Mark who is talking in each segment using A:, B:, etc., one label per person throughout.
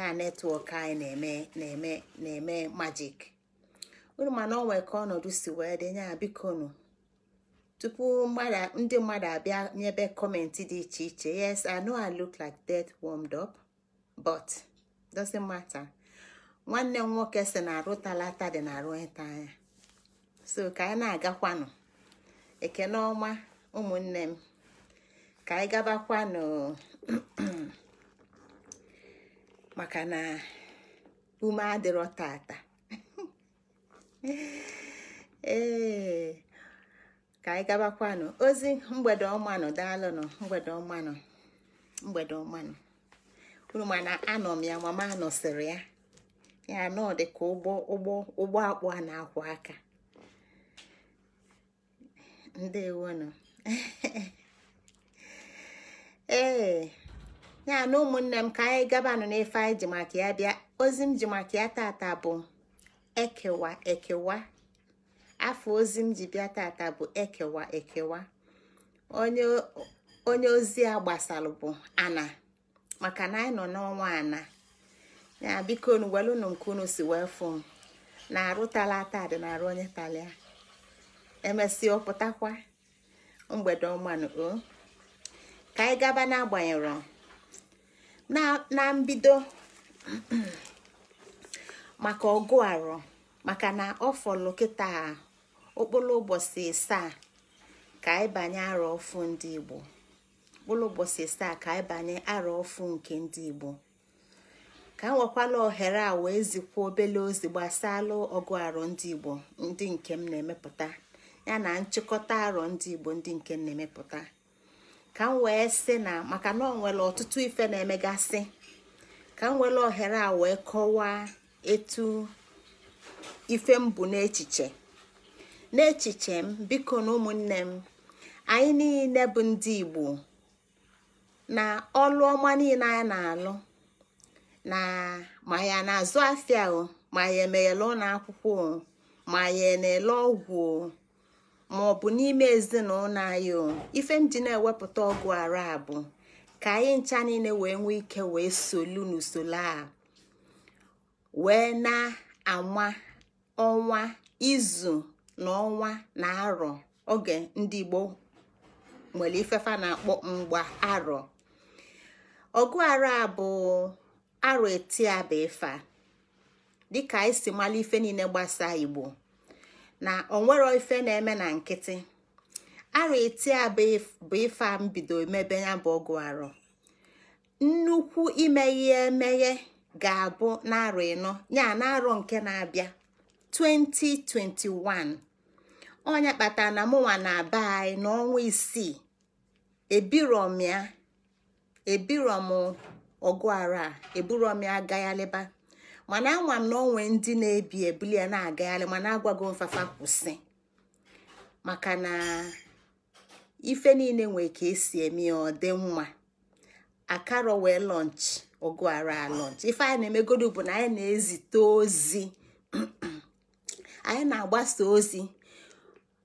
A: na netwọk anyị na-eme na-eme na-eme majik unu mana ọ nwere ka ọnọdụ si wee dị nya bikonu tupu ndị mmadụ abịa nyebe kọmentị dị iche iche yes i know i look like death warmed up but doesn't matter nwanne m nwoke si na arụ talata dị na arụ ịta anya so ka anyị na-agakwanụ ekene ọma ụmụnne m ka anyị gabakwanụ maka na ume adịrọ tata ee ka anyị gabakwanụ ozi mgbede ọmanụ daalụnụ mgbede ọmanụ mgbede ọmanụ unu mana anọ m ya mama anọsịrị ya ya anọ dị ka ụgbọ ụgbọ ụgbọ akpụ a na-akwụ aka nọ ee ya na ụmụnne m ka anyị nọ n'efe anyị ji maka ya bịa ozi m ji maka ya tata bụ ekewa ekewa afọ ozi m ji bịa tata bụ ekewa ekewa onye ozi a gbasalụ bụ ana maka na anyị nọ n'ọnwa ana ya biko nu welụnụ nke unu si wee fụ m na-arụ tala ata dị na-arụ onye talia emesịa ọpụtakwa mgbede ọmanụ o ka anyị gaba n'agbanyeghị na mbido maka ọgụ arụ maka na ọ fọlụ kịta okpolo ụbọchị asaa ka ịbanye arọ ọfụ ndị igbo okpolo ụbọchị ka ịbanye arọ ọfụ nke ndị igbo ka nwekwala ohere a wee zikwa obele ozi gbasala ọgụ arọ ndị igbo ndị nke m na-emepụta ya na nchịkọta arọ ndị igbo ndị nke m na-emepụta ka m wee sị na maka na ọ nwere ọtụtụ ife na-emegasị ka m were ohere a wee kọwaa etu ife m bụ n'echiche n'echiche m biko na ụmụnne m anyị niile bụ ndị Igbo na ọlụ ọma niile anyị na-alụ na ma ya na-azụ afịa o ma ya emeghele ụlọ akwụkwọ o ma ya na-ele ọgwụ o ma ọ bụ n'ime ezinụlọ anyị o ife m na-ewepụta ọgụ ara abụ ka anyị ncha niile wee nwee ike wee solu n'usoro a wee na-anwa ọnwa izu na ọnwa na arọ oge ndị Igbo nwere ifefa na-akpọ mgba arọ ọgụ ara bụ arọ etiaba ife dịka anyị e si mara ife niile gbasa Igbo na onwero ife na-eme na nkịtị arụ eti a bụ ife a mbido mebe ya bụ ọgụ arụ nnukwu imeghe emeghe ga-abụ n'arụ ịnọ ya na arọ nke na-abịa 2021 onye kpatara na mụnwa na-aba anyị n'ọnwa isii ebirom ya ebirom ọgụ arụ a eburom ya agaghalịba mana ama m na onwe ndị na-ebi ebuli ya na-agagharị mana agwago mfafa kwụsị maka na ife niile nwee ka esi eme ya ọ dị mma akaro wee lọnch ọgụ ara lọnch ife anyị na-emegodu bụ na anyị na-ezite ozi anyị na-agbasa ozi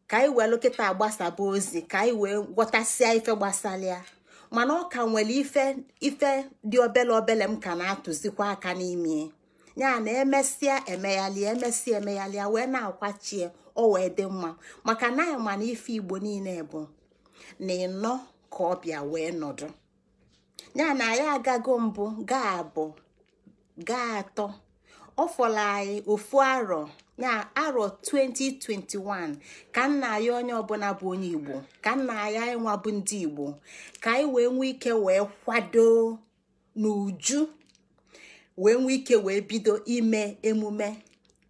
A: ka anyị wee lokịta agbasaba ozi ka anyị wee gwọtasịa ife gbasalịa mana ọ ka nwere ife ife dị obele obele m ka na-atụzikwa aka n'ime ya na emesịa emeghalị emesịa emeghalịa wee na-akwachie ọ wee dị mma maka na anyị ma na ife igbo niile bụ na ịnọ ka ọbịa wee nọdụ ya na anyị agago mbụ gaa abụ gaa atọ ọ anyị ofu arọ na arọ 2021 ka nna anyị onye ọbụla bụ onye igbo ka nna anyị anyị nwa bụ ndị igbo ka anyị wee nwee ike wee kwado n'uju wee nwee ike wee bido ime emume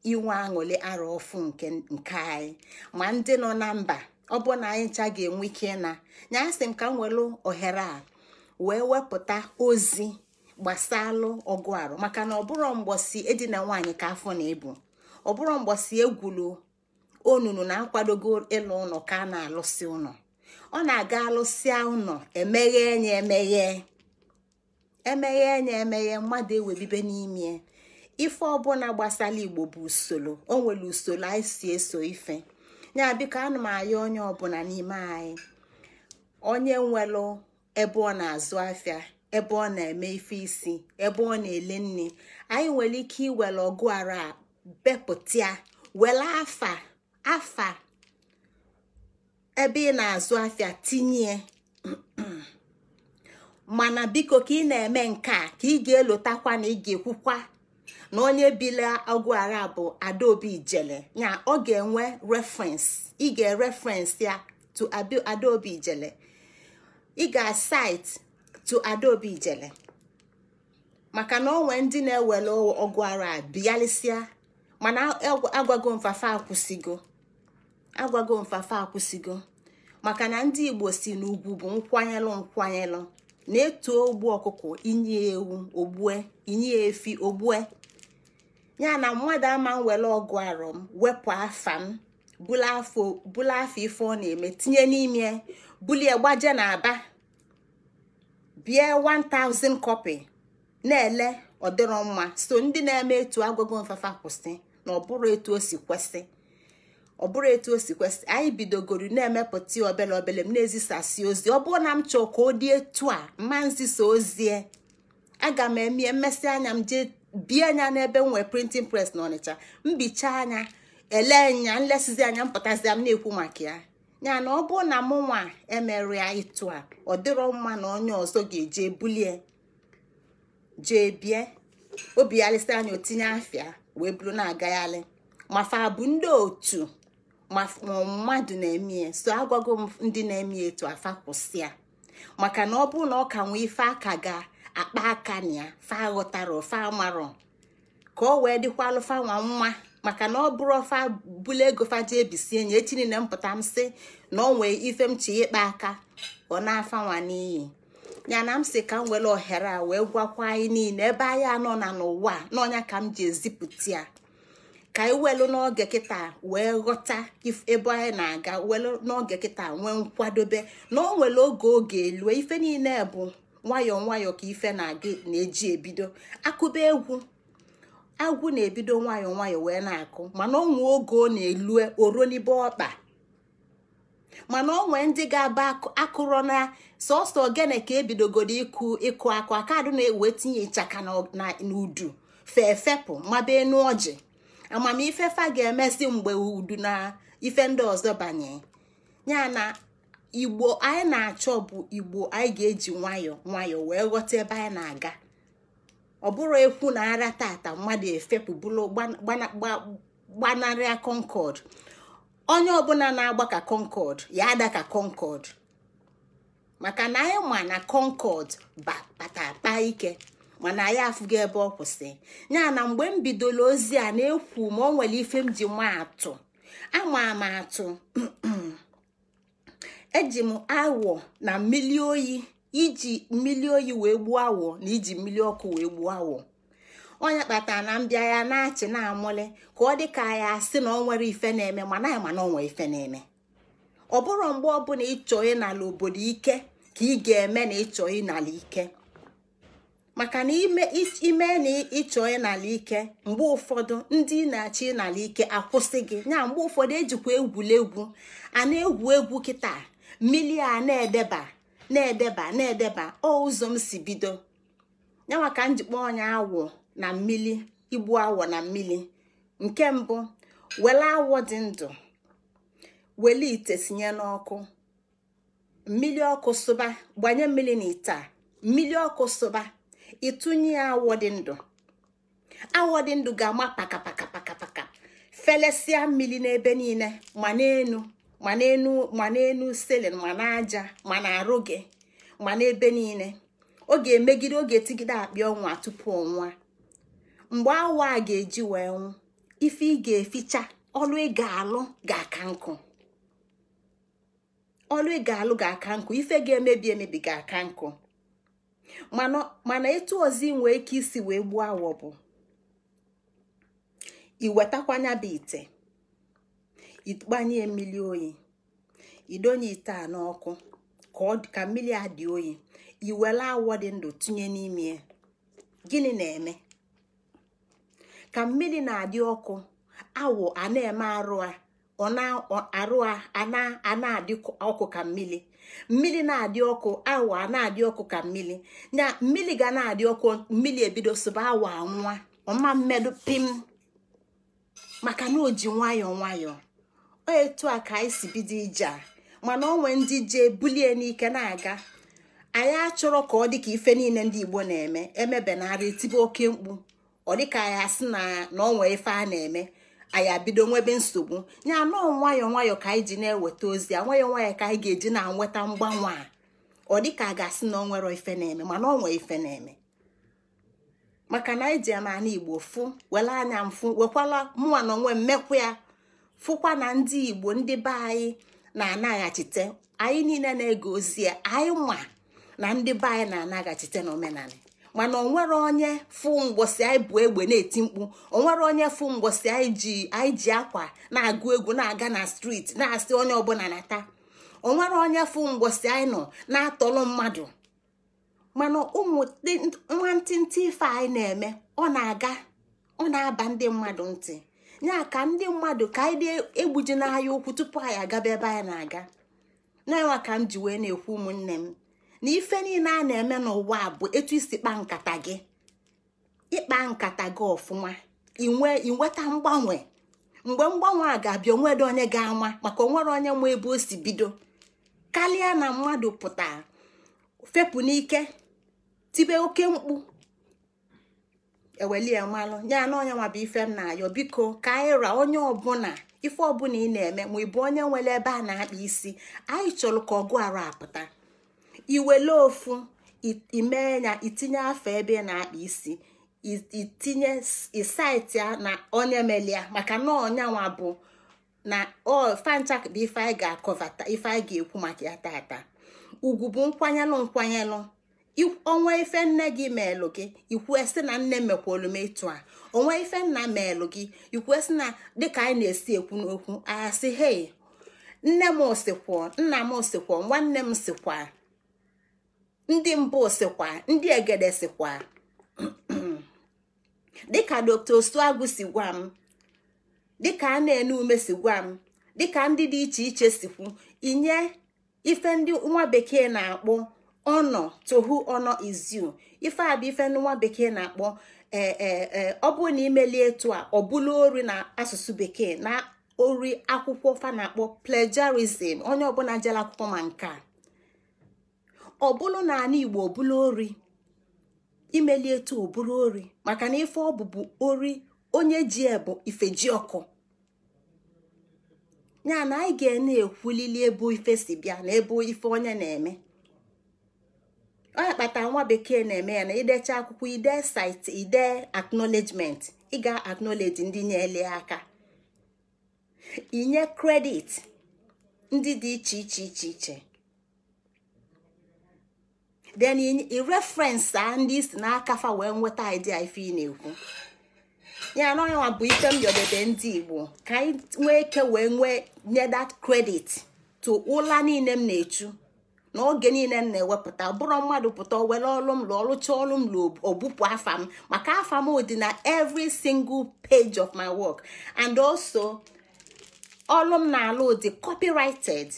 A: inwe aṅụli arụ ọfụ nke nke anyị ma ndị nọ na mba ọ bụ na anyị ncha ga-enwe ike ịna nya sị m ka m welu ohere a wee wepụta ozi gbasalụ ọgụ arụ maka na ọbụrụ mgbọsi edina nwaanyị ka afọ na-ebu ọbụrụ mgbọsi egwulu onunu na-akwadogo ịlụ ụlọ ka a na-alụsị ụlọ ọ na-aga alụsịa ụlọ emeghe ya emeghe emeghe na emeghe mmadụ ewebibe n'ime ife ọbụla gbasara igbo bụ usoro o nwere usoro anyị si eso ife ya biko anụ m onye ọbụla n'ime anyị onye nwere ebe ọ na-azụ afịa ebe ọ na-eme ife isi ebe ọ na-ele nne anyị nwere ike iwere ọgụ ara bepụta afa afa ebe ị na-azụ afịa tinye mana biko ka ị na-eme nke a ka ị ga-elotakwa na ị ga-ekwukwa na onye bile ọgwụ ara bụ adaobi ijele ya ọ ga-enwe reference ị ga ereference ya to adaobi ijele ị ga site to adaobi ijele maka na onwe ndị na-ewere ọgwụ ara bịalịsịa mana agwago mfafa akwụsịgo agwago mfafa akwụsịgo maka na ndị igbo si n'ugwu bụ nkwanyelụ nkwanyelụ na-etu ogbu ọkụkọ inye ewu ogbue inye efi ogbue ya na mmadụ ama nwere ọgụ arọ m wepụ afa m afọ ife ọ na-eme tinye n'ime bulie gbaje na aba bie 1000 kọpị na-ele ọdịrọ mma so ndị na-eme etu agụgụ mfafa kwụsị na ọ bụrụ etu o si kwesị ọ bụrụ etu o si kwesị anyị bidogoro na-emepụta ya obele obele m na-ezisasi ozi ọ bụrụ na m chọọ ka ọ dị etu a mma nzisa ozie aga m emie mmesị anya m jee bie anya n'ebe m nwee printing press na ọnịcha mbicha anya ele nya nlesizi anya mpụtazia m na-ekwu maka ya ya na ọ bụrụ na mụ nwa emerịa ịtụ a ọ dịrọ mma na onye ọzọ ga-eje bulie jee bie obi ya anya otinye afịa wee buru na-agagharị mafa bụ ndị otu ma mmadụ na-eme ya so agwago m ndị na-eme etu afa kwụsị ya maka na ọ bụrụ na ọ ka nwee ife aka ga akpa aka na ya fa ghọtara ofe amarọ ka ọ wee dịkwa alụfa nwa nwa maka na ọ bụrụ ofa bụla ego faji ebisi enyi echi niile mpụta m sị na ọ nwee ife m chi ịkpa aka ọ na-afa nwa n'iyi ya na m si ka m were ohere a wee gwakwa anyị niile ebe anyị anọ na n'ụwa n'ọnya ka m ji ezipụta ya ka anyị e welu n'oge kịta wee ghọta ebe anyị na-aga welu n'oge kịta nwee nkwadobe na o oge oge elue ife niile bụ nwayọọ nwayọọ ka ife na-aga na-eji ebido akụba egwu agwụ na-ebido nwayọọ nwayọọ wee na-akụ mana onwe oge ọ na-elue oronibe ọkpa mana onwe ndị ga-aba akụrọ na sọsọ ogene ka ebidogodo ịkụ ịkụ akụ akadụ na-ewe tinye ịchaka na udu fepụ mabe enu ọjị amamife fa ga-emesi mgbe udu na ife ndị ọzọ banye ya na igbo anyị na-achọ bụ igbo anyị ga-eji nwayọọ nwayọọ wee ghọta ebe anyị na-aga ọ bụrụ ekwu na ara tata mmadụ efepụ bụrụ gbanarịa Concord onye ọbụla na-agba ka Concord ya ada ka Concord maka na anyị ma na Concord batakpa ike mana anyị afụgo ebe ọ kwụsị ya na mgbe m bidoro ozi a na-ekwu ma ọ nwere ife m ji m atụ ama m atụ eji m awọ na mmiri oyi iji mmiri oyi wee gbuo awọ na iji mmiri ọkụ wee gbuo awọ onye kpata na mbịa ya na-achị na-amụlị ka ọ dị ka ya si na ọ nwere ife na-eme mana ya mana ọ ife na-eme ọ bụrụ mgbe ọbụla ịchọ ịnala obodo ike ka ị ga-eme na ịchọ ịnala ike maka na ime na ịchọ n'ala ike mgbe ụfọdụ ndị na achị n'ala ike akwụsị gị mgbe ụfọdụ ejikwa egwuregwu a na-egwu egwu kịta mmiri a na-edeba na-edeba na-edeba ọ ụzọ m si bido ya maka njikpa ọnya awọ na mmiri igbu awọ na mmiri nke mbụ were awọ dị ndụ wele ite sinye n'ọkụ mmiri ọkụ sụba gbanye mmiri na ite a mmiri ọkụ sụba ịtụnye ya awọ dị ndụ awọ dị ndụ ga-ama pakapakapakapaka felesịa mmiri n'ebe niile ma n'enu ma n'enu ma n'enu selin ma n'aja ma na-arụ gị ma n'ebe niile ọ ga-emegide ọ ga-etigide akpịa ọnwa tupu ọnwa mgbe awa a ga-eji wee nwụ ife ị ga-eficha ọlụ ị ga-alụ ga-aka nkụ ọlụ ị ga-alụ ga-aka nkụ ife ga-emebi emebi ga-aka nkụ mana etu ozi nwee ike isi wee gbuo awọ bụ iwetakwanya bụ ite igbanye mmiri oyi idonye ite a n'ọkụ ka mmiri a dị oyi iwere awọ dị ndụ tinye n'ime ya gịnị na-eme ka mmiri na-adị ọkụ awọ a na-eme arụ a ọ na-arụ a na-adị ọkụ ka mmiri mmiri na-adị ọkụ awa na-adị ọkụ ka mmiri na mmiri ga na-adị ọkụ mmiri ebido sụba awa nwa ọma mmedụ pim maka na o ji nwayọọ nwayọọ ọ etu a ka anyị si bido ije a mana onwe ndị jee bulie n'ike na-aga anyị achọrọ ka ọ dị ka ife niile ndị Igbo na-eme emebenarị tibe oke mkpu ọ dịka anyị asị na na onwe ife a na-eme anyị abido nwebe nsogbu ya anọọ nwayọọ nwayọọ ka anyị ji na-eweta ozi a nwayọọ nwayọọ ka anyị ga-eji na-anweta mgbanwe a ọ dị ka a ga-asị na ọ nwere ife na-eme mana ọ nwee ife na-eme maka na anyị ji ya n'ala igbo fụ were anya mfụ wekwala mụnwa na onwe mmekwa ya fụkwa na ndị igbo ndị be anyị na-anaghachite anyị niile na-ege ozi anyị ma na ndị be anyị na-anaghachite omenala. mana onwere onye fụ mgbosi anyị bụ egbe na-eti mkpu onwere onye fụ mgbosi anyị ji akwa na-agụ egwu na-aga na striti na-asị onye ọbụla nata onwere onye fụ mgbosi anyị nọ na-atọlụ mmadụ mana ụmụ nwantịntị ife anyị na-eme ọ na-aga ọ na-aba ndị mmadụ ntị ya ka ndị mmadụ ka anyị egbuji n'ahịa ụkwụ tupu anyị agaba ebe anyị na-aga na ka m ji wee na-ekwu ụmụnne m na ife niile a na-eme n'ụwa a bụ etu isi kpa nkata gị ịkpa nkata gị ọfụma inweta mgbanwe mgbe mgbanwe a ga-abịa onwere onye ga-ama maka onwere onye ma ebe o si bido karịa na mmadụ pụta fepụ n'ike tibe oke mkpu ewelie mmanụ ya na onye nwa bụ ife m na-ayọ biko ka anyị ra onye ọbụla ife ọbụla ị na-eme ma ị bụ onye nwere ebe a na-akpa isi anyị chọrọ ka ọgụ arụ apụta iwele ofu imee ya itinye afọ ebe na-akpa isi itinye isaiti ya na onye meli maka na ọnyanwa bụ na fancha bụ ife anyị ga-akọvata ife anyị ga-ekwu maka ya tata ugwu bụ nkwanyelụ nkwanyelụ onwe ife nne gị meelụ gị esi na nne mekwolu m ịtụ a onwe ife nna meelụ gị esi na dịka anyị na-esi ekwu n'okwu asị hei nne m sikwuo nna m sikwuo nwanne m sikwa ndị mbụ sikwa ndị egede sikwa dịka dr osuagwu si gwa m dịka a na-ene ume si gwa m dịka ndị dị iche iche sikwu inye ife ndị nwa bekee na-akpọ ọnọ tohu ọnọ iziu ife a bụ ife ndị nwa bekee na-akpọ ee e, e, ọ na imeli etu a ọ bụla ori na asụsụ bekee na ori akwụkwọ fa na-akpọ plagiarism onye ọbụla jere akwụkwọ ma nke a ọbụlụ na ala igbo bụrụ ori imeli etu ọbụrụ ori maka na ife ọ bụbu ori onye ji ebu ife ji ọkụ ya na anyị ga na-ekwulili ebe ife si bịa na ebe ife onye na-eme ọ ya nwa bekee na-eme ya na idecha akwụkwọ ide site ide acknowledgement ị ga ndị ndị ele aka inye kredit ndị dị iche iche iche iche then i reference a ah, ndị isi n'aka fa wee nweta idea ife ị na-ekwu ya na ọnwa bụ ife m yọdebe ndị igbo ka anyị nwee ike wee nwee nye that credit to ụla niile m na-echu n'oge niile m na-ewepụta bụrụ mmadụ pụta were ọlụ m lụ ọlụcha ọlụ m lụ afa m maka afa m dị na every single page of my work and also ọlụ m na-alụ dị copyrighted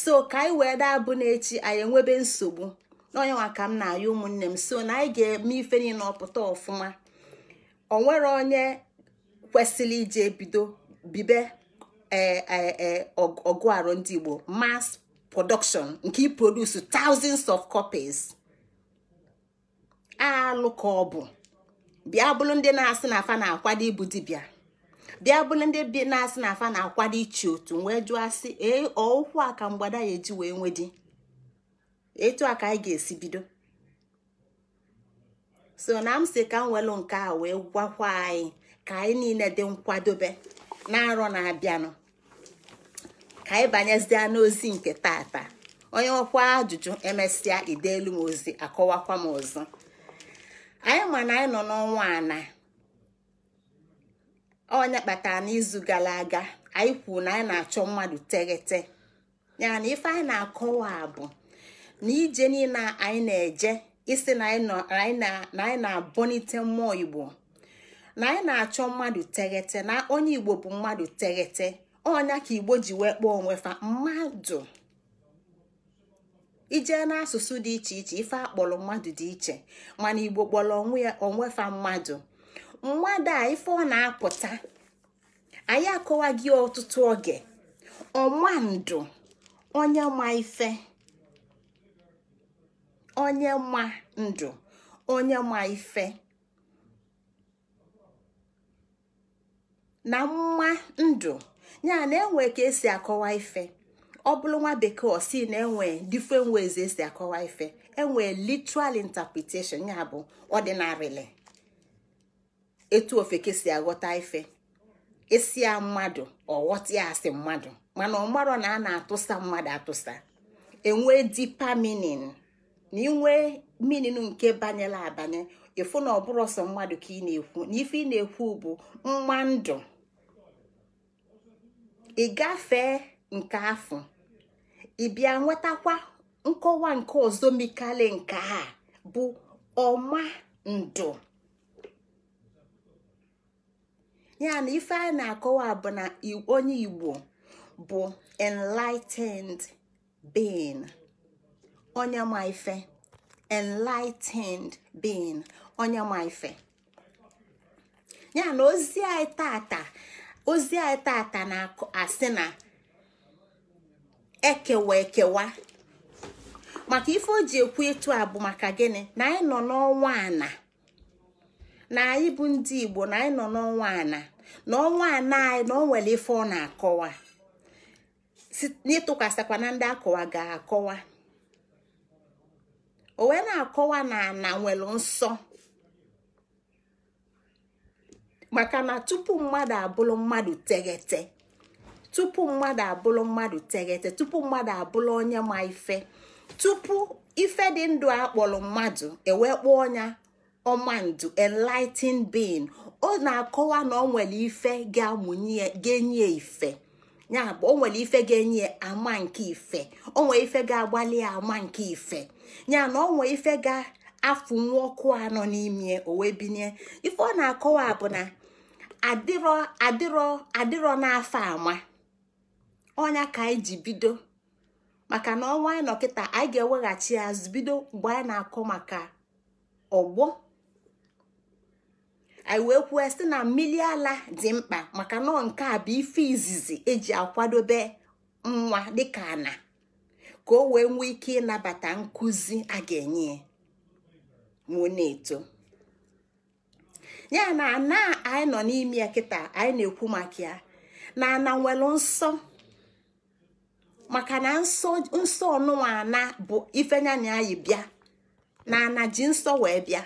A: so ka anyị wee daa bụ n'echi anyị enwebe nsogbu n'onyenwa ka m na-ayọ ụmụnne m so na anyị ga-eme ife niile ọpụta ọfụma o nwere onye kwesịrị ije bido bibe ee e, e, ọgụ arụ ndị igbo mass production nke iproduce thousands of copies alụ ka ọ bụ bịa bụrụ ndị na-asị na afa na-akwado ịbụ dibịa bịa bụrụ ndị na-asị na afa na-akwado ichi otu wee jụọ asị ee ọụkwụ a ka mgbada ya eji wee nwee di etu a ka anyị ga-esi bido so na m si ka m welụ nke a wee gwakwa anyị ka anyị niile dị nkwadobe na arọ na-abịanụ ka anyị banyezie n'ozi nke tata onye ọkwa ajụjụ emesịa ideelu m ozi akọwakwa m ọzọ anyị ma na anyị nọ n'ọnwa ana onye kpatara n'izu gara aga anyị kwuru na anyị na-achọ mmadụ teghete ya na ife anyị na-akọwa bụ na ije niile anyị na-eje isi na anyị na-abọnite mmụọ igbo na anyị na-achọ mmadụ teghete na onye igbo bụ mmadụ teghete onya ka igbo ji wee kpọọ onwe fa mmadụ ije n'asụsụ dị iche iche ife akpọrọ mmadụ dị iche mana igbo kpọrọ onwe fa mmadụ mmadụ a ife ọ na-apụta anyị akọwa ọtụtụ oge ọmandụ onye ma ife onye ma ndụ onye ma ife na mma ndụ ya na enwe ka esi akọwa ife ọ bụrụ nwa bekee osi na enwe different ways esi akọwa ife enwe literal interpretation ya bụ ọdịnarịlị etu ofeke si aghọta ife esi mmadụ ọghọta ya asị mmadụ mana ọ na a na-atụsa mmadụ atụsa enwe dipa na inwee mininu nke banyela abanye ịfụ na ọbụrụ ọsọ mmadụ ka ị na-ekwu na ife ị na-ekwu bụ nwa ndụ ị gafee nke afọ ị nwetakwa nkọwa nke ọzọ mikali nke a bụ ọma ndụ ya na ife a na-akọwa bụ na onye Igbo bụ enlightened being. onye ma ife enlightened being onye ma ife ya na ozi anyị tata ozi anyị tata na-asị na ekewa ekewa maka ife o ji ekwu etu a bụ maka gịnị na anyị nọ n'ọnwa ana na anyị bụ ndị Igbo na anyị nọ n'ọnwa ana na ọnwa ana anyị na o nwere ife ọ na-akọwa n'ịtụkwasịkwa na ndị akọwa ga-akọwa o wee na-akọwa na ana nwere nsọ maka na tupu mmadụ abụrụ mmadụ teghete tupu mmadụ abụrụ mmadụ teghete tupu mmadụ abụrụ onye ma ife tupu ife dị ndụ a kpọrọ mmadụ ewekpo ọnya ọmandu enlightened being ọ na-akọwa na ọ nwere ife ga-amụnye ga-enye ife ya bụ onwere ife ga-enye ama nke ife o ife ga-agbalị ama nke ife ya na o nwere ife ga-afụ nwa ọkụ anọ n'ime o wee binye ife ọ na-akọwa bụ na adịrọ adịrọ adịrọ n'afọ ama ọnya ka anyị ji bido maka na ọnwa anyị nọkịta anyị ga-eweghachi azụ bido mgbe anyị na-akọ maka ọgbọ anyị wee kwuo sị na mmiri ala dị mkpa maka nọ nke a bụ ife izizi eji akwadobe nwa dịka ana ka o wee nwee ike ịnabata nkuzi a ga-enye ya na-eto ya na ana anyị nọ n'ime ya kịta anyị na-ekwu maka ya na ana nwere nsọ maka na nsọ nụwa ana bụ ifenyana anyị bịa na ana ji nsọ wee bịa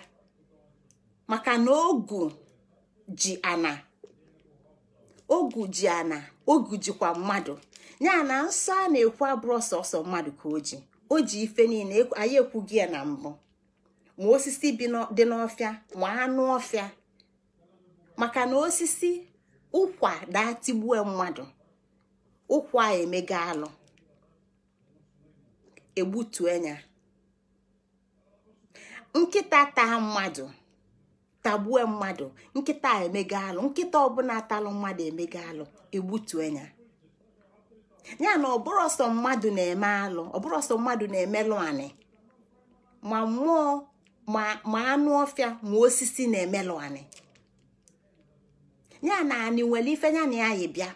A: maka na ogu ji ana ogu jikwa mmadụ ya na nsọ a na-ekwu abụrụ sọsọ mmadụ ka o ji o ji ife niile anyị ekwughị ya na mbụ ma osisi dị n'ọfịa ma anụ ọfịa maka na osisi ụkwa datigbue mmadụ ụkwa emega alụ egbutue ya nkịta taa mmadụ tagbue mmadụ nkịta emega alụ nkịta ọbụla atalụ mmadụ emega alụ egbutue ya ya na ọbụrụ ọsọ mmadụ na-eme alụ ọbụrụ mmadụ na-emelụ anị ma mmụọ ma anụ ọfịa ma osisi na-emelụ anị ya na anị nwere ife ya na ya yi bịa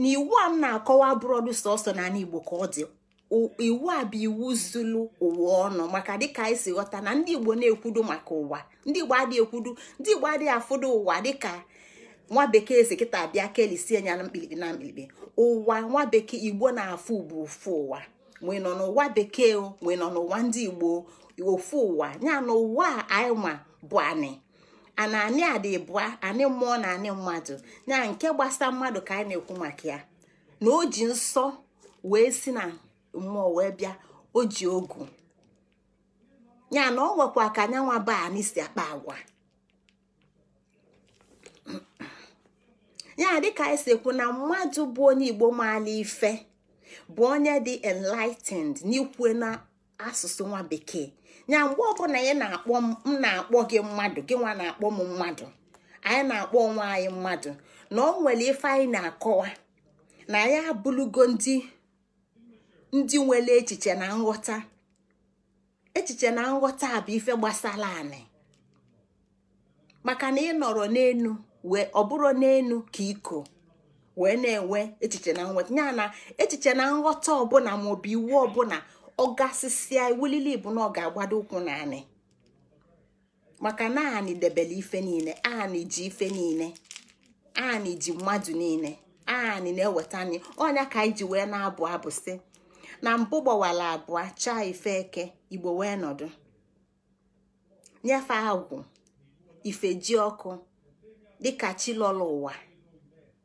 A: na iwu a m na-akọwa bụrọdụ sọsọ na anị Igbo ka ọ dị iwu a bụ iwu zulu ụwa ọnụ maka dịka anyị si ghọta na ndị igbo na-ekwudo maka ụwa ndị igbo adịghị ekwudo ndị igbo adịghị afụdo ụwa dịka nwa bekee si kịta abịa kelisie ya na mkpirikpi na mkpirikpi ụwa nwa bekee igbo na-afụ bụ ofu ụwa nwee nọ n'ụwa bekee nwee nọ n'ụwa ndị igbo ofu ụwa ya na ụwa anyị nwa bụ anị ana anị adị bụa anị mmụọ na anị mmadụ ya nke gbasa mmadụ ka anyị na-ekwu maka ya na o ji nsọ wee si na mmụọ wee bịa o ji ogu ya na ọ nwekwa ka anyanwa ba anyị si akpa agwa ya dịka anyị si ekwu na mmadụ bụ onye igbo maala ife bụ onye dị enlightened n'ikwu na asụsụ nwa bekee ya mgbe ọbụla ya na-akpọ m na-akpọ gị mmadụ gị nwa na-akpọ m mmadụ anyị na-akpọ onwe anyị mmadụ na ọ nwere ife anyị na-akọwa na ya abụlugo ndị ndị nwere echiche na nghọta echiche na nghọta a bụ ife gbasara anị maka na ị nọrọ n'elu wee ọ bụrụ n'elu ka iko wee na-enwe echiche na nghọta ya na echiche na nghọta ọbụla bụ iwu ọbụla ọ gasịsịa iwulili bụ na ọ ga-agbado ụkwụ na anị maka na anị debele ife niile anị ji ife niile anị ji mmadụ niile anị na-eweta anyị ọnya ka anyị ji wee na-abụ abụ sị na mbụ gbawara abụọ chaa ife eke igbo wee nọdụ nyefe agwụ ife ji ọkụ dịka chi lọrọ ụwa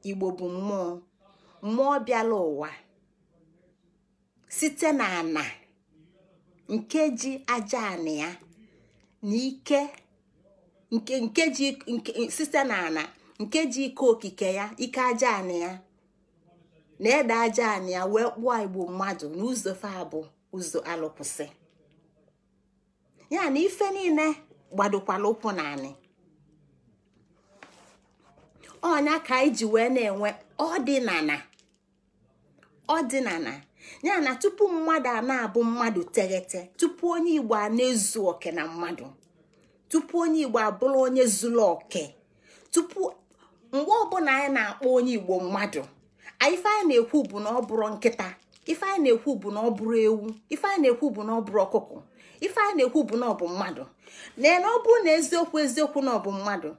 A: igbo bụ mmụọ mmụọ bịala ụwa site na ana nke ji aja ya na ike nke ji ike okike ya ike aja ana ya na-ede aja anyị ya wee kpụọ igbo mmadụ n'ụzọ fa abụ ụzọ alụkwụsị ya na ife niile gbadokwala ụkwụ na anyị ọnya ka anyị ji wee na-enwe ọdịnala ọdịnala ya na tupu mmadụ a na-abụ mmadụ teghete tupu onye igbo a na-ezu oke na mmadụ tupu onye igbo abụrụ onye zuru oke tupu mgbe ọbụla anyị na-akpọ onye igbo mmadụ ife anyị na-ekwu bụ na ọ bụrụ nkịta ife anyị na-ekwu bụ na ọ bụrụ ewu ife anyị na-ekwu bụ na ọ bụrụ ọkụkọ ife anyị na-ekwu bụ na ọ bụ mmadụ na na ọ bụrụ na eziokwu eziokwu na ọ bụ mmadụ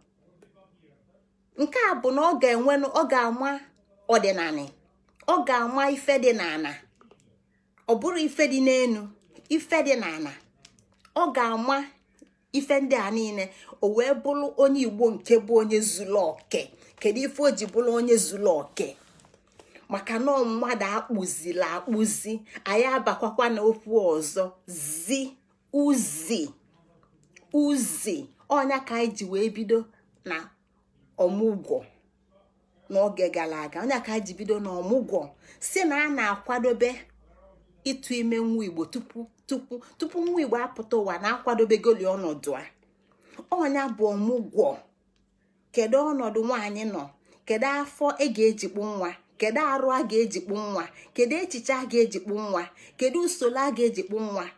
A: nke a bụ na ọ ga-enwe ọ ga-ama ọdịnala ọ ga-ama ife dị n'ala ọ bụrụ ife dị n'enu ife dị n'ala ọ ga-ama ife ndị a niile o wee bụrụ onye igbo nke bụ onye zuru oke kedu ife o ji bụrụ onye zuru oke maka na mmadụ akpụzila akpụzi anyị abakwakwa n'okwu ọzọ zi uzi uzi ọnya ka anyị ji wee bido na ọmụgwọ n'oge gara aga ọnya ka anyị ji bido na ọmụgwọ si na a na-akwadobe ịtụ ime nwa igbo tupu tupu tupu nwa igbo apụta ụwa na-akwadobegoli ọnọdụ a ọnya bụ ọmụgwọ kedu ọnọdụ nwaanyị nọ kedu afọ ị e ga-ejikpu nwa kedu arụ a ga-ejikpu nwa kedu echiche a ga ejikpo nwa kedu usoro a ga ejikpo nwa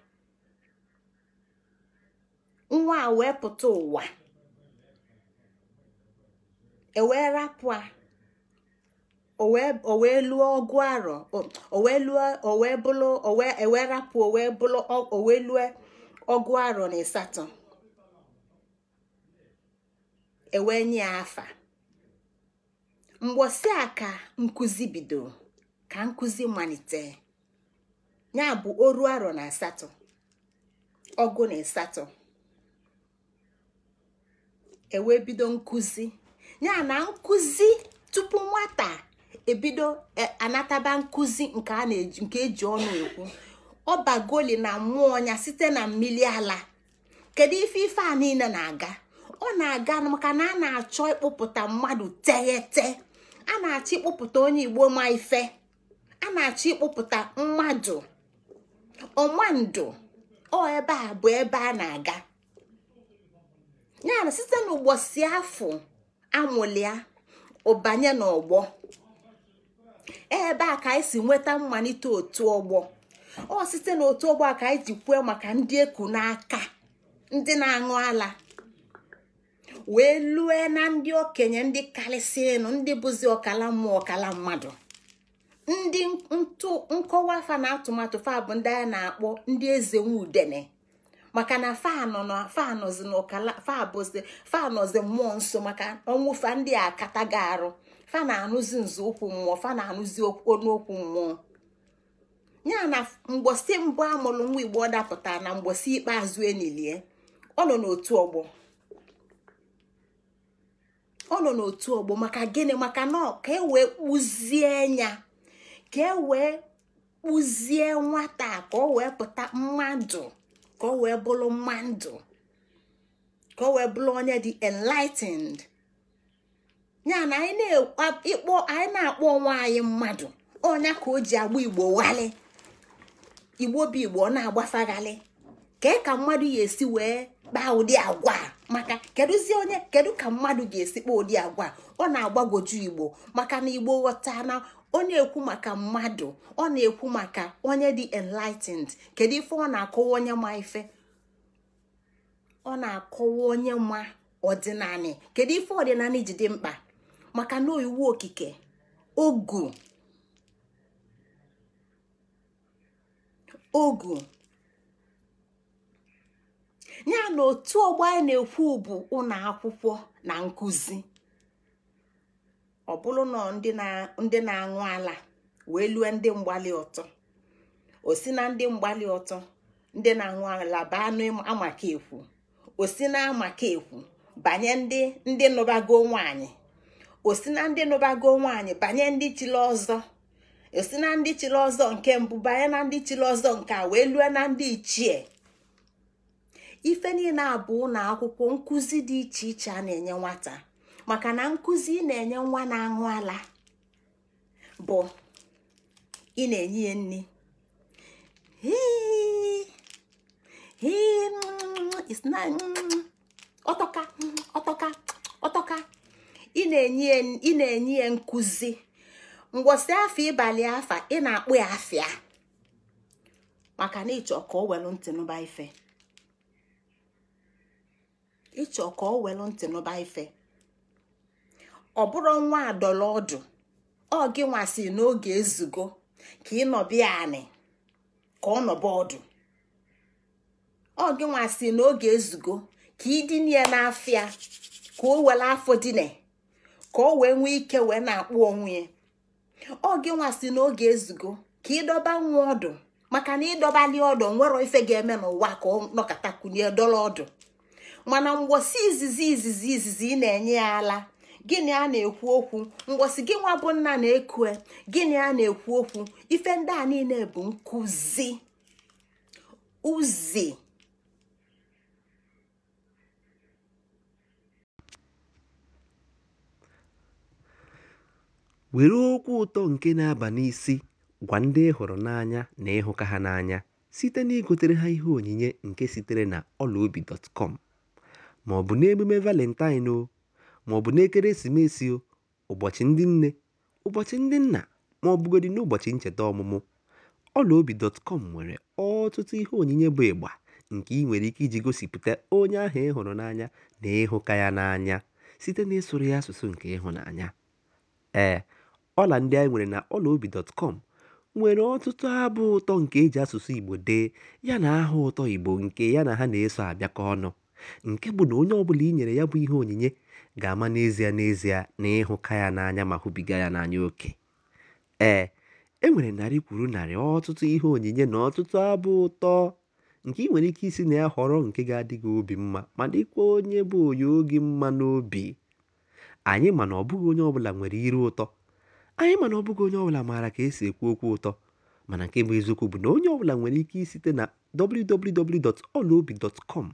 A: nwa a e wee pụta ụwa ewee rapụ a o wee lụọ ọgụ arọ o wee ewee e rapụ ọgụ arọ na ịsatọ ewee nye afa mgbosi a ka nkụzi bido ka nkụzi malite ya bụ oru arọ na asatọ ọgụ na asatọ ewee bido ya na nkuzi tupu nwata ebido e, anataba nkụzi nke eji nke eji ọnụ ekwu ọbagoli na mmụọ ya site na mmiri ala kedu ife ife a niile na-aga ọ na-aga maka na a na-achọ ịkpụpụta mmadụ teghete a na-achọ ịkpụpụta onye igbo ma ife a na-achọ ịkpụpụta mmadụ ọmandụ ọ ebe a bụ ebe a na-aga yana site n'ụgbọ si afọ amụlia ụbanye n'ọgbọ ebe a ka anyị si nweta mmalite otu ọgbọ ọ site n'otu ọgbọ a ka anyị ji kwuo maka ndị eku n'aka ndị na-aṅụ ala wee lue na ndị okenye ndị karịsịnụ ndị bụzi ọkala mmụọ ọkala mmadụ ndị ntụ nkọwa fa na atụmatụ fa bụ ndị a na-akpọ ndị eze nwudene maka na fanọzi n'ọkala fabụzi fanọzi mmụọ nso maka ọnwụ fa ndị a akataghị arụ fa na-anụzi nzọụkwụ mmụọ fa na-anụzi ọnụokwu mmụọ ya na mgbosi mbụ amụrụ nwa igbo ọ dapụtara na mgbosi ikpeazụ enilie ọ nọ n'otu ọgbọ ọ nọ n'otu ọgbọ maka gịnị maka na ka e wee kpụzie ya ka e wee kpụzie nwata ka ọ wee pụta mmadụ ka ọ wee bụrụ mmadụ ka ọ wee bụrụ onye dị enlightened ya na anyị na-akpọ anyị na-akpọ onwe anyị mmadụ ọnya ka o ji agba igbo wali igbo bụ igbo ọ na-agbafaghalị ka e ka mmadụ ya esi wee kpaa ụdị agwa maka kedụzi onye kedu ka mmadụ ga-esi kpaa ụdị agwa ọ na-agbagwoju igbo maka na igbo ghọta na onye ekwu maka mmadụ ọ na-ekwu maka onye dị enlightened kedu ife ọ na-akọwa onye ma ife ọ na-akọwa onye ma ọdịnanị kedu ife ọdịnanị ji dị mkpa maka na oyiwu okike ogu ogu ya na otu ọgbọ anyị na-ekwu bụ ụlọ akwụkwọ na nkụzi ọ bụrụ na ndị na-aṅụ ala wee lue ndị mgbali ọtọ o si na ndị mgbali ọtọ ndị na-aṅụ ala baa n'amaka ekwu o si na amaka ekwu banye ndị ndị nụbago nwanyị o si na ndị nụbago nwanyị banye ndị chiri ọzọ o si na ndị chiri ọzọ nke mbụ banye na ndị chiri ọzọ nke a wee lue na ndị ichie ife niile abụọ na akwụkwọ nkụzi dị iche iche a na-enye nwata maka na nkụzi ị na-enye nwa na-aṅụ ala bụ ị na-enye ya nri mm, mm. ọtọka ị na-enye ya nkụzi ngwọsị afọ ịbalị afa ị na-akpụ ya afịa maka na ịchọ ka o welu ntị ife ịchọ ka ọ welụ ntị n'ụba ife ọ bụrụ nwa adọla ọdụ ọ gị nwasị n'oge ezugo ka ị nọbịa anị ka ọ nọba ọdụ ọ gị nwasị n'oge ezugo ka ịdịnye ya n'afịa ka o were afọ dine ka o wee nwee ike wee na-akpụ onwe ya ọ gị nwasị n'oge ezugo ka ịdọba nwa ọdụ maka na ịdọbali ọdụ nwere ife ga-eme n'ụwa ka ọ nọkọtakwunye dọla ọdụ mana mgbosi izizi izizi izizi ị na-enye ya ala gịnị a na-ekwu okwu mgbosi gị nwa bụ nna na-ekue gịnị a na-ekwu okwu ife ndị a niile bụ nkụzi uzi
B: were okwu ụtọ nke na-aba n'isi gwa ndị ị hụrụ n'anya na ịhụka ha n'anya site na igotere ha ihe onyinye nke sitere na ọlaobi dọtkọm ma ọ bụ n'emume Valentine o, ma ọ bụ n'ekeresimesi o, ụbọchị ndị nne, ụbọchị ndị nna ma ọ bụgodị n'ụbọchị ncheta ọmụmụ, ọlaobi.com nwere ọtụtụ ihe onyinye bụ ịgba nke ị nwere ike iji gosipụta onye ahụ ị hụrụ n'anya na ịhụka ya n'anya site ịsụrụ ya asụsụ nke ịhụnanya. Ee, ọla ndị anyị nwere na ọlaobi.com nwere ọtụtụ abụ ụtọ nke eji asụsụ Igbo dee yana aha ụtọ Igbo nke ya na ha na-eso abịakọ ọnụ. nke bụ na onye ọbụla i nyere ya bụ ihe onyinye ga-ama n'ezie n'ezie na ịhụka ya n'anya ma hụbiga ya n'anya oke ee e nwere narị kwuru narị ọtụtụ ihe onyinye na ọtụtụ abụ ụtọ nke ị nwere ike isi na ya họrọ nke ga-adị gị obi mma ma dịkwa onye bụ onye oge mma n'obi anyị mana ọbụghị onye ọbụla nwere iru ụtọ anyị mana ọbụghị onye ọbụla maara ka esi ekwu okwu ụtọ mana nke bụ eziokwu bụ na onye ọbụla nwere ike isite na www.olaobi.com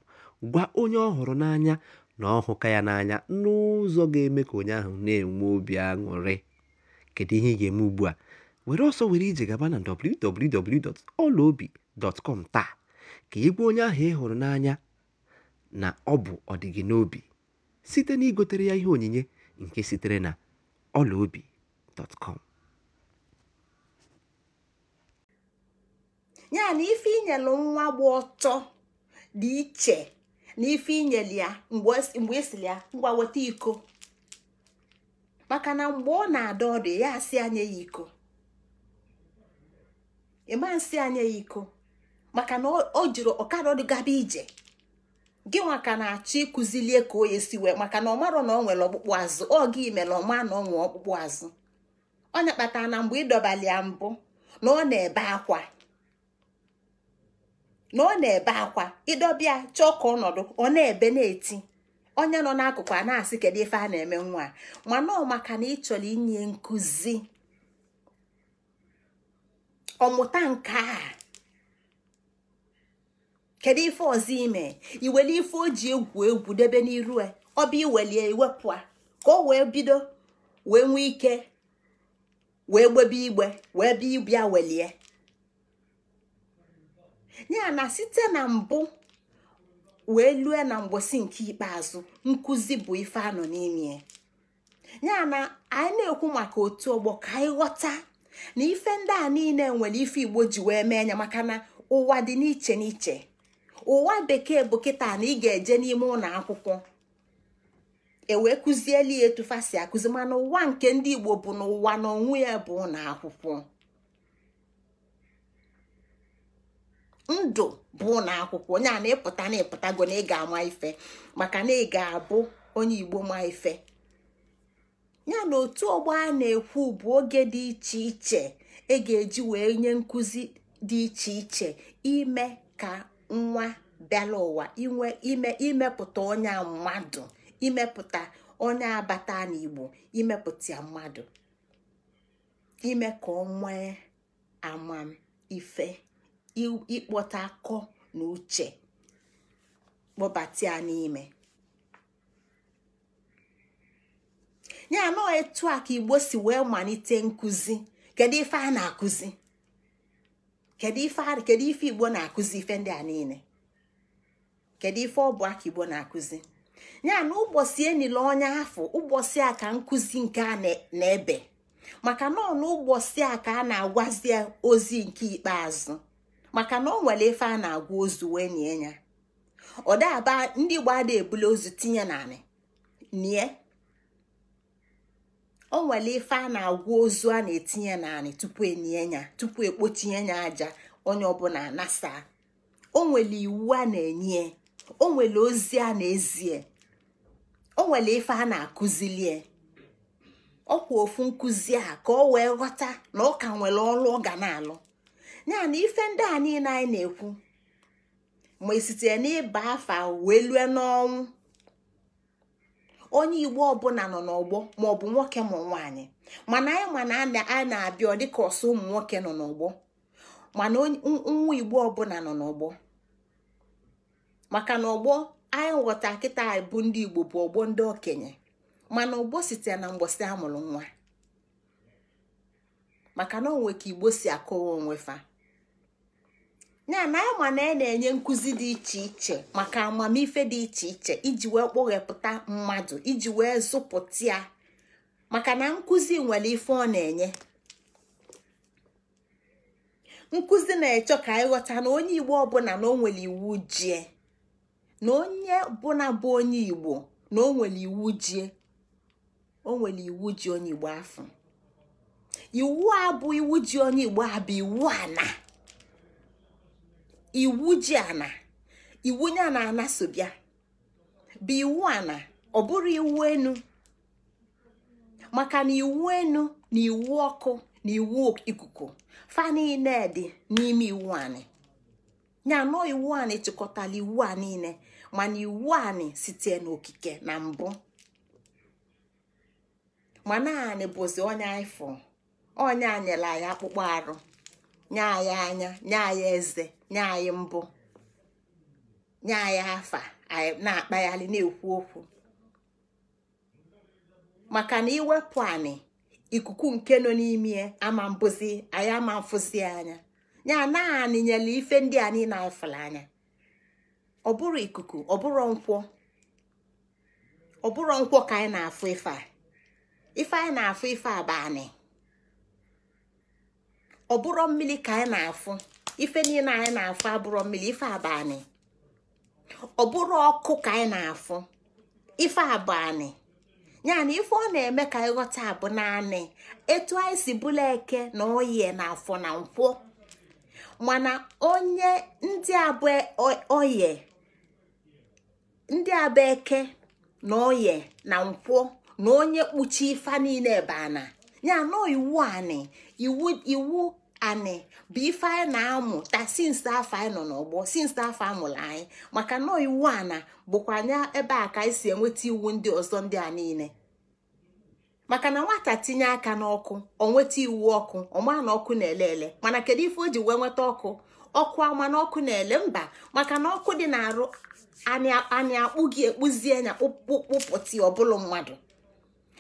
B: gwa onye ọ hụrụ n'anya na ọ hụka ya n'anya n'ụzọ ga-eme ka onye ahụ na-enwe obi aṅụrị kedu ihe ị ga-eme ugbu a were ọsọ were ije gaba na dọtkọm taa ka ị gwa onye ahụ ị hụrụ n'anya na ọ bụ ọdịgị n'obi site na igotere ya ihe onyinye nke sitere na ọlaobi.com
A: ya na ife nwa ọtọ dị iche na ife inyeli ya mgbe esili e ya ngwa weta iko maka na mgbe ọ na-ada ọdụ ya asị anya ya iko ịma nsị anya ya iko maka na ọ jiri ọkara ọdụ gaba ije gị nwaka na-achọ ịkụzilie ka o yesi wee maka na ọ marọ na ọ nwere ọkpụkpụ azụ ọ gị mere ọma na ọ nwee ọkpụkpụ azụ ọ kpatara na mgbe ịdọbali ya mbụ na ọ na-ebe akwa na ọ na-ebe akwa ịdọbịa chọọ ka ọnọdụ ọ na-ebe na-eti onye nọ n'akụkụ a na-asị kedu ife a na-eme nwa mana ọ maka na ị chọrọ inye nkụzi ọmụta nke a kedu ife ọzọ ime iweli ife o ji egwu egwu debe n'iru e, ọbịa iwelie iwepụ a ka o wee bido wee nwee ike wee gbebe igbe wee bịa ịbịa welie ya na site na mbụ wee lue na mgbosi nke ikpeazụ nkụzi bụ ife anọ n'ime ya na anyị na-ekwu maka otu ọgbọ ka anyị ghọta na ife ndị a niile nwere ife igbo ji wee mee anya maka na ụwa dị n'iche n'iche ụwa bekee bụ kịta na ị ga-eje n'ime ụlọ akwụkwọ ewee kụzieli ya etufasi akụzi mana ụwa nke ndị igbo bụ n'ụwa na ya bụ ụlọ akwụkwọ ndụ bụ na akwụkwọ onye a na-epụta na-epụtago na ị ga-ama ife maka na ị ga-abụ onye igbo ma ife ya na otu ọgbọ a na-ekwu bụ oge dị iche iche e ga-eji wee nye nkụzi dị iche iche ime ka nwa bịala ụwa inwe ime imepụta onye mmadụ imepụta onye abata n'igbo imepụta mmadụ ime ka ọ nwee ife. ịkpọta akọ na uche kpọbata n'ime ya nọ etu a ka igbo si wee malite nkụzi kedu ife a na-akụzi kedu ife igbo na-akụzi ife ndị a niile kedu ife ọ bụ aka igbo na-akụzi ya na ụbọchị enile onye afọ ụbọchị a ka nkụzi nke a na-ebe maka nọ na ụbọchị a ka a na-agwazi ozi nke ikpeazụ maka na ọ nwere ife a na-agwa ozu wee nie ya ọ ndị igbo da ebula ozu tinye naanị nie o nwere ife a na-agwa ozu a na-etinye naanị tupu enye ya tupu ekpochie ya aja onye ọbụla nasa o nwere iwu a na-enye o nwere ozi a na-ezie o nwere ife a na-akụzilie ọkwa ofu nkụzi a ka o wee ghọta na ọ ka nwere ọrụ ọ ga na-alụ ya na ife ndị a niile anyị na-ekwu ma esitere n'ịba afa wee lue n'ọnwụ onye igbo ọbụla nọ n'ọgbọ maọbụ nwoke ma nwaanyị mana anyị mana a na-abịa ọ dịka ọsọ ụmụ nwoke nọ n'ọgbọ mana nwa igbo ọbụla nọ n'ọgbọ maka na ọgbọ anyị ghọta kịta bụ ndị igbo bụ ọgbọ ndị okenye mana ọgbọ site na mgbọsị amụrụ nwa maka na onwe ka igbo si akọwa onwe fa. ya na ya ma na ị e na-enye nkụzi dị iche iche maka amamife dị iche iche iji wee kpụghepụta mmadụ iji wee zụpụta ya maka na nkụzi nwere ife ọ na-enye nkụzi na-echọ ka ghọta na onye igbo ọbụla na o nwere iwu jie na onye bụla bụ onye igbo na o nwere iwu jie o nwere iwu ji onye igbo afọ iwu a bụ iwu ji onye igbo a bụ iwu ana. iwu ji ana iwu nye ana ana bụ iwu ana ọ bụrụ iwu enu maka na iwu enu na iwu ọkụ na iwu ikuku fa niile dị n'ime iwu anyị nya nọ iwu anyị chịkọtara iwu a niile mana iwu anyị site n'okike na mbụ ma naanị bụzi onye ifo onye anyela ya akpụkpọ arụ nye anyị anya nye anyị eze nye anyị mbụ nye anyị afa anyị na-akpagharị na-ekwu okwu maka na iwepụ anyị ikuku nke nọ n'ime ama mbụzi anyị ama mfụzi anya ya anaghị anyị nyere ife ndị anyị na-efere anya ọ bụrụ ikuku ọ bụrụ nkwọ ọ bụrụ nkwọ ka anyị na-afụ ife a ife anyị na-afụ ife a anyị ọ bụrụ mmiri ka anyị na-afụ ife niile anyị na-afụ abụrọ mmiri ife abanị ọ bụrụ ọkụ ka anyị na-afụ ife abanị na ife ọ na-eme ka anyị ghọta abụ naanị etu anyị si bụla eke na oyi na afọ na nkwọ mana onye ndị abụ oye ndị abụ eke na oye na nkwọ na onye kpuchi ife niile bụ ana ya na iwu ani iwu iwu bụ ife anyị na-amụ ta afọ anyị nọ n'ọgbọ sinsi afọ amụrụ anyị maka nọọ iwu a na bụkwa anya ebe a ka anyị si enweta iwu ndị ọzọ ndị a niile maka na nwata tinye aka n'ọkụ ọ nweta iwu ọkụ ọma na ọkụ na-ele ele mana kedu ife o ji wee nweta ọkụ ọkụ ama na ọkụ na-ele mba maka na ọkụ dị na-arụ anyị akpụ gị ekpụzie nya kpụpụti ọbụlụ mmadụ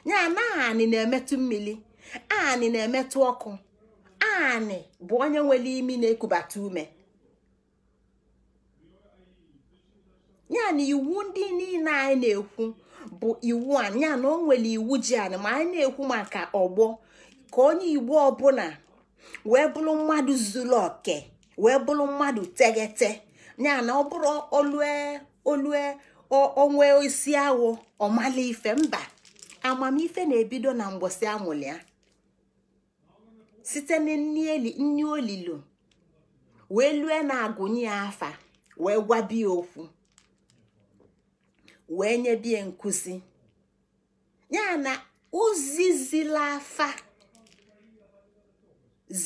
A: nya na anị na-emetụ mmiri anị na-emetụ ọkụ naanị bụ onye nwere imi na-ekubata ume ya na iwu ndị niile anyị na-ekwu bụ iwu a ya na o nwere iwu ji anyị ma anyị na-ekwu maka ọgbọ ka onye igbo ọbụla wee bụrụ mmadụ zuru oke wee bụrụ mmadụ teghete ya na ọ bụrụ olue olue onwe isi awụ ọmala ife mba amamife na-ebido na mgbọsị amụlịa site na nni olilo wee lue na-agụnye ya afa wee gwabie okwu wee nyebie nkụzi ya na zila afa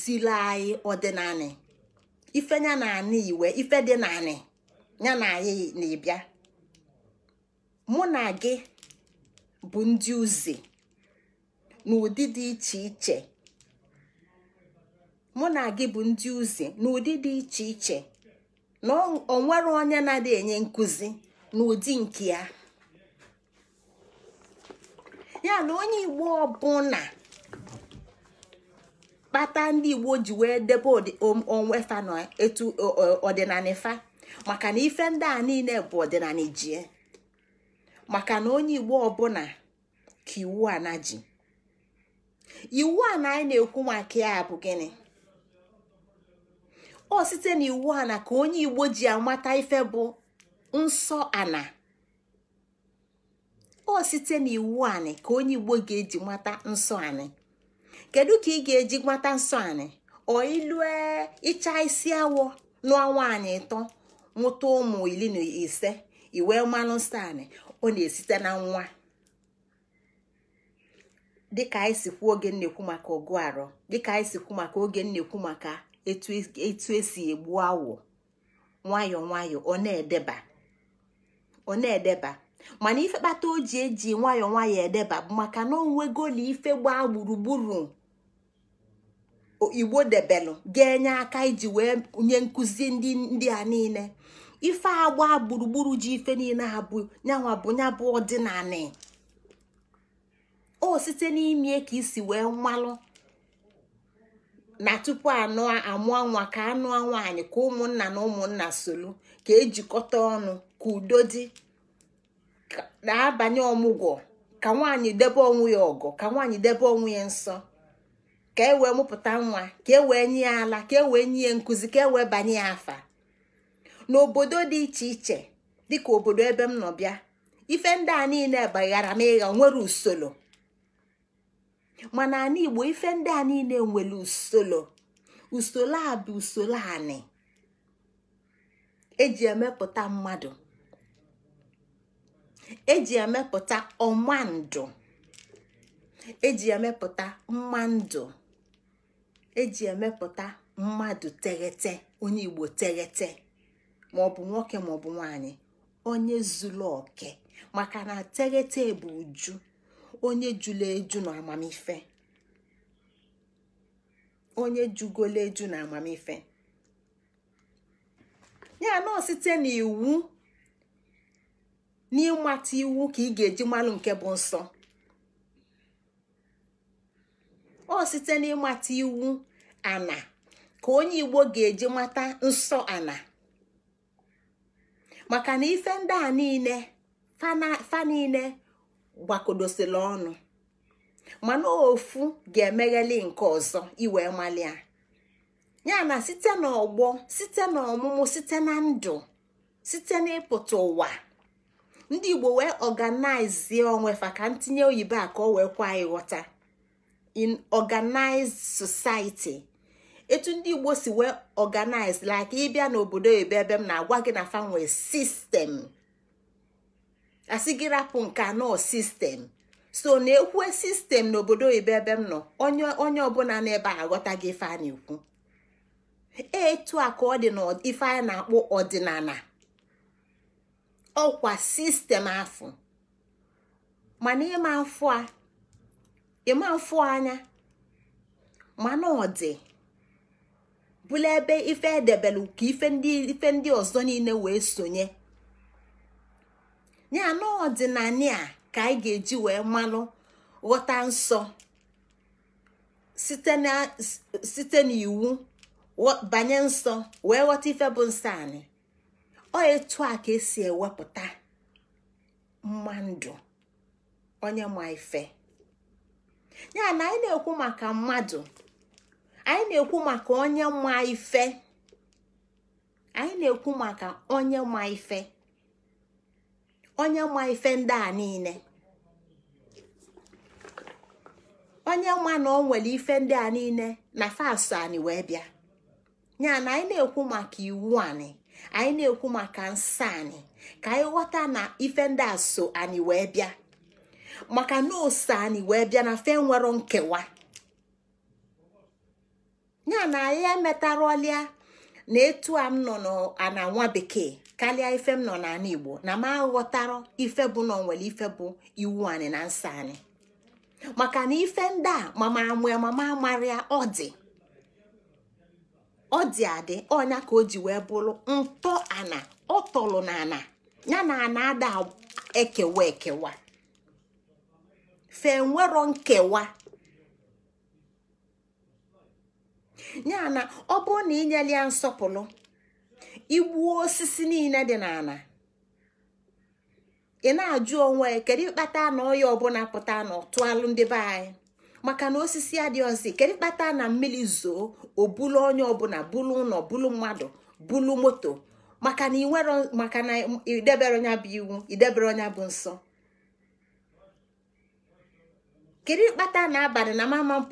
A: zila anyị ọdịnanị ife ya na anị iwe ife dị naanị ya na anyị na-ebịa mụ na gị bụ ndị uze n'ụdị dị iche iche mụ na gị bụ ndị uzi n'ụdị dị iche iche na onwere onye na-adị enye nkụzi n'ụdị nke ya ya na onye igbo ọbụla kpata ndị igbo ji wee debe onwe fa na etu ọdịnala fa maka na ife ndị a niile bụ ọdịnala jie maka na onye igbo ọbụla ka iwu a na ji iwu a na anyị na-ekwu maka ya bụ gịnị ọ site n'iwu ana ka onye igbo ji amata ife bụ nsọ ana ọ site n'iwu anị ka onye igbo ga-eji mata nsọ anị kedu ka ị ga-eji mata nsọ anị ọ e, ịcha isi awọ nụọ nwaanyị ịtọ mụta ụmụ iri na ise iwe mmanụ nsọ anị ọ na-esite na nwa dịka anyị si kwuo oge nnekwu maka ọgụ arọ dịka anyị si kwuo maka oge nnekwu maka etu esi egbu awọ nwayọọ nwayọọ ọ na-edeba ọ na-edeba mana ife kpata o ji eji nwayọọ nwayọọ edeba bụ maka na onwegoli ife gbaa gburugburu igbo debelụ ga-enye aka iji wee nye nkuzi ndị a niile ife agba gburugburu ji ife niile ha bụ nyanwa bụ nya bụ na o site n'ime ka isi wee mmalụ na tupu anụ amụọ nwa ka anụọ nwaanyị ka ụmụnna na ụmụnna solu ka ejikọta ọnụ ka udo dị na-abanye ọmụgwọ ka nwaanyị debe onwe ya ọgọ ka nwaanyị debe onwe ya nsọ ka e wee mụpụta nwa ka e wee nye ya ala ka e wee nye ya nkụzi ka e wee banye ya afa n'obodo dị iche iche dịka obodo ebe m nọ bịa ife ndị a niile baghara m ịgha nwere usoro mana ana igbo ife ndị a niile nwere usoro usoro a bụ usoro anị eji emepụta mmadụ eji emepụta ọma ndụ eji emepụta mma eji emepụta mmadụ teghete onye igbo teghete maọbụ nwoke maọbụ nwanyị onye zuru oke maka na teghete bụ uju onye jula eju na amamife onye jugola eju na amamife ya nọ site n'iwu n'ịmata iwu ka ị ga-eji malụ nke bụ nsọ ọ site n'ịmata iwu ana ka onye igbo ga-eji mata nsọ ana maka na ife ndị a niile fa niile gbakodosila ọnụ mana ofu ga-emegheli nke ọzọ iwe malia ya na site n'ọgbọ site n'ọmụmụ site na ndụ site n'ịpụta ụwa ndị igbo wee ọganaizie onwefa ka ntinye oyibo a ka o wee kwa ịghọta in organized society etu ndị igbo si wee organize like ịbịa n'obodo ebe ebe m na-agwa gị na fanwe sistem asị gị rapụ nke anọ sistem so na-ekwue sistem n'obodo oyibo ebe m nọ onye ọbụla n'ebe a aghọta gị ife a na-ekwu e, etu a ka ọ dị ife a na-akpọ ọdịnala ọkwa sistem afọ mana ịma mfụ ịma anya ma ọ bụla ebe ife edebelu ka ife ndị ọzọ niile wee sonye ya na ọdịnala ka anyị ga-eji wee malụ ghọta nsọ site n'iwu banye nsọ wee ghọta ife bụ nsọ anyị ọ etu a ka esi ewepụta mmadụ onye ma ife ya na anyị na-ekwu maka mmadụ anyị na-ekwu maka onye ma ife anyị na-ekwu maka onye ma ife onye ma ife ndị a niile onye ma na o nwere ife ndị a niile na fastụ anyị wee bịa ya na anyị na-ekwu maka iwu anyị anyị na-ekwu maka nsọ anyị ka anyị ghọta na ife ndị a so anyị wee bịa maka na ose anyị wee bịa na fe nwere nkewa ya na anyị emetarọlịa na etu a m nọ na nwa bekee karịa ife m nọ n'ala igbo na m aghọtara ife bụ nọ nwere ife bụ iwu anyị na nsọ anyị maka na ife ndị a mama amụ ya mama amara ọ dị ọ dị adị ọnya ka o ji wee bụrụ ntọ ana ọ na ana ya na ana ada ekewa ekewa fe nwero nkewa ya na ọ bụrụ na inyere ya nsọpụrụ igbuo osisi niile dị n'ala ị na-ajụ onwe kedu ịkpata na ọya ọbụla pụta na ọtụalụ ndị be anyị maka na osisi adịghịzi kedu ịkpata na mmiri zoo obulu onye ọbụla bulu ụlọ bulu mmadụ bulu moto maka na inwero maka na idebere onye bụ iwu idebere onya bụ nsọ kedu ịkpata na abalị na mama m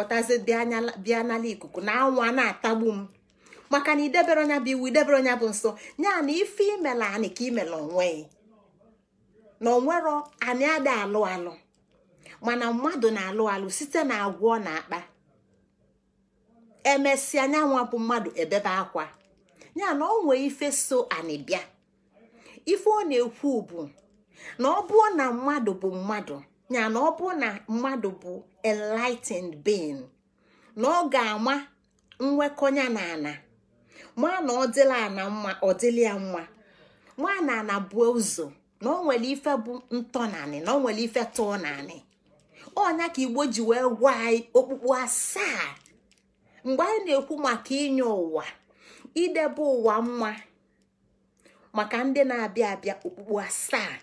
A: bịa n'ala ikuku na anwụ a na-atagbu m maka na idebere onya bụ iwu idebere onya bụ nsọ ya na ife imela anị ka imela onwe na onwero anyị ada alụ alụ mana mmadụ na-alụ alụ site na agwọ na-akpa emesịa anyanwụ bụ mmadụ ebebe akwa ya na ọ nwee ife so anị bịa ife ọ na-ekwu bụ na ọ bụọ na mmadụ bụ mmadụ ya na ọ bụọ na mmadụ bụ enlightened being na ọ ga-ama nwekọnya na ana maa na ọ dịla ana mma ọ dịla ya mma na ana buo ụzọ na ọ nwere ife bụ ntọnanị na ọ nwere ife tụọ naanị onya ka igbo ji wee gwa anyị okpukpu asaa mgbe anyị na-ekwu maka inye ụwa idebe ụwa mma maka ndị na-abịa abịa okpukpu asaa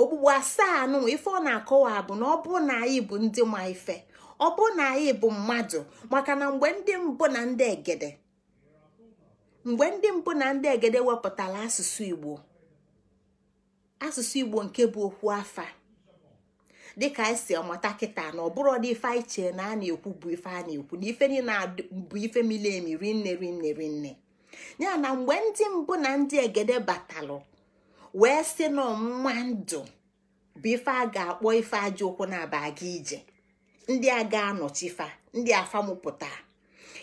A: okpukpu asaa nụ ife ọ na-akọwa bụ na ọ bụrụ na anyị bụ ndị ma ife ọ bụ na anyị bụ mmadụ maka na mgbe ndị mbụ na ndị egede mgbe ndị mbụ na ndị egede wepụtara asụsụ igbo asụsụ igbo nke bụ okwu afa dịka anyị e si kịta na ọ bụrụ ọdị ife anyị chee na a na-ekwu bụ ife a na-ekwu na ife niile bụ ife mili emi rinne rinne rinne ya na mgbe ndị mbụ na ndị egede batalụ wee sị na ọmụma ndụ bụ ife a ga-akpọ ife aja ụkwụ na-aba aga ije ndị a ga fa, ndị afamụpụta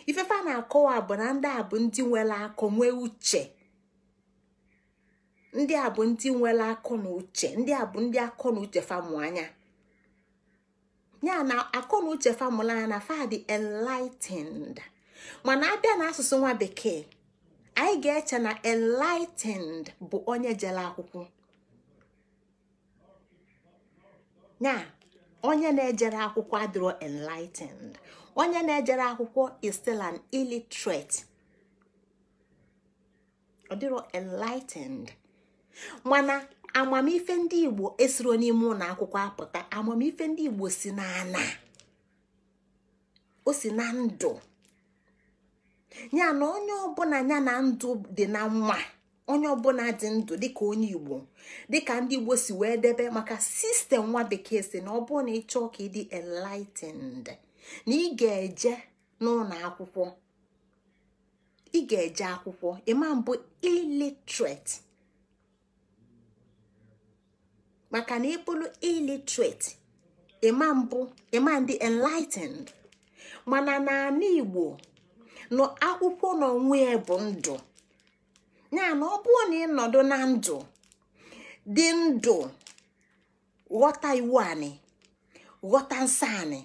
A: ifefa na-akọwa bụ na ndị a bụ ndị nwere akụ nwee uche ndị a bụ ndị nwere akụ na uche ndị a bụ ndị akọ na uche famụ anya ya na akọ na uche famụla anya na fa enlightened mana abịa na asụsụ nwa bekee anyị ga-eche na enlightened bụ onye jere akwụkwọ ya onye na-ejere akwụkwọ adịrọ enlightened onye na-ejere akwụkwọ is still an illiterate ọ dịrọ enlightened mana amamife ndị igbo esiro n'ime ụlọ akwụkwọ apụta amamife ndị igbo si n'ana o si na ndụ ya na onye ọbụla ya na ndụ dị na nwa onye ọbụla dị ndụ dịka onye igbo dịka ndị igbo si wee debe maka sistem nwa bekee si na ọ bụrụ na ịchọọ ka ịdị enlightened na ị ga-eje n'ụlọ akwụkwọ ị ga-eje akwụkwọ ịma mbụ illiterate maka na ịbụrụ illiterate ịma mbụ ịma ndị enlightened mana na igbo nọ akwụkwọ n'onwe ya bụ ndụ ya na ọ bụrụ na ịnọdụ na ndụ dị ndụ ghọta iwu anyị ghọta nsọ anyị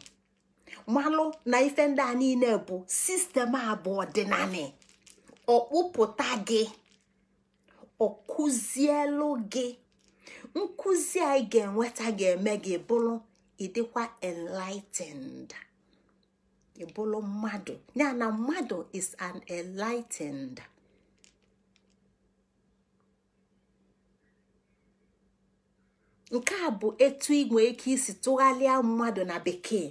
A: malụ na ife ndị a niile bụ sistem abụọ dị naanị ọkpụpụta gị ọkụzielu gị nkụzi anyị ga-enweta ga-eme gị bụrụ ịdịkwa enlightened ịbụrụ mmadụ ya na mmadụ is an enlightened. nke a bụ etu igwe ike isi tụgharịa mmadụ na bekee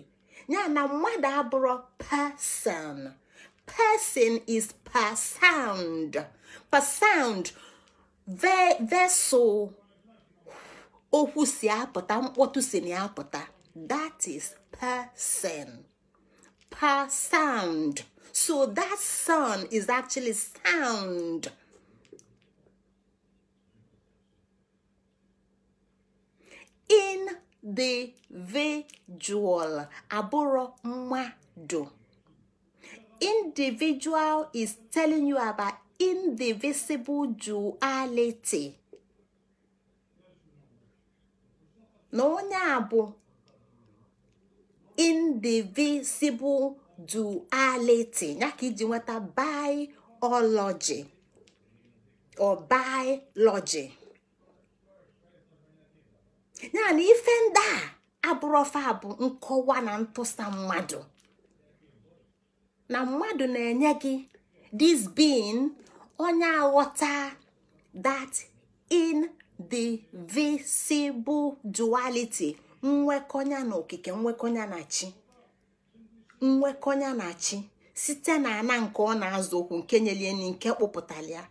A: ya na mmadụ abụrụ person person is per sound per sound vessel okwu si apụta mkpọtụ si na apụta that is person per sound so that sound is actually sound. individual abụrụ mmadụ individual is telling you about indivisible duality na onye a bụ indivisible duality ya ka iji nweta biology or biology ya na ife ndị a abụrọfa bụ nkọwa na ntụsa mmadụ na mmadụ na-enye gị this being onye aghọta that in the visible duality nwekọnya na okike nwekọnya na chi nwekọnya na chi site na ana nke ọ na-azụ okwu nke nyelieni nke kpụpụtara ya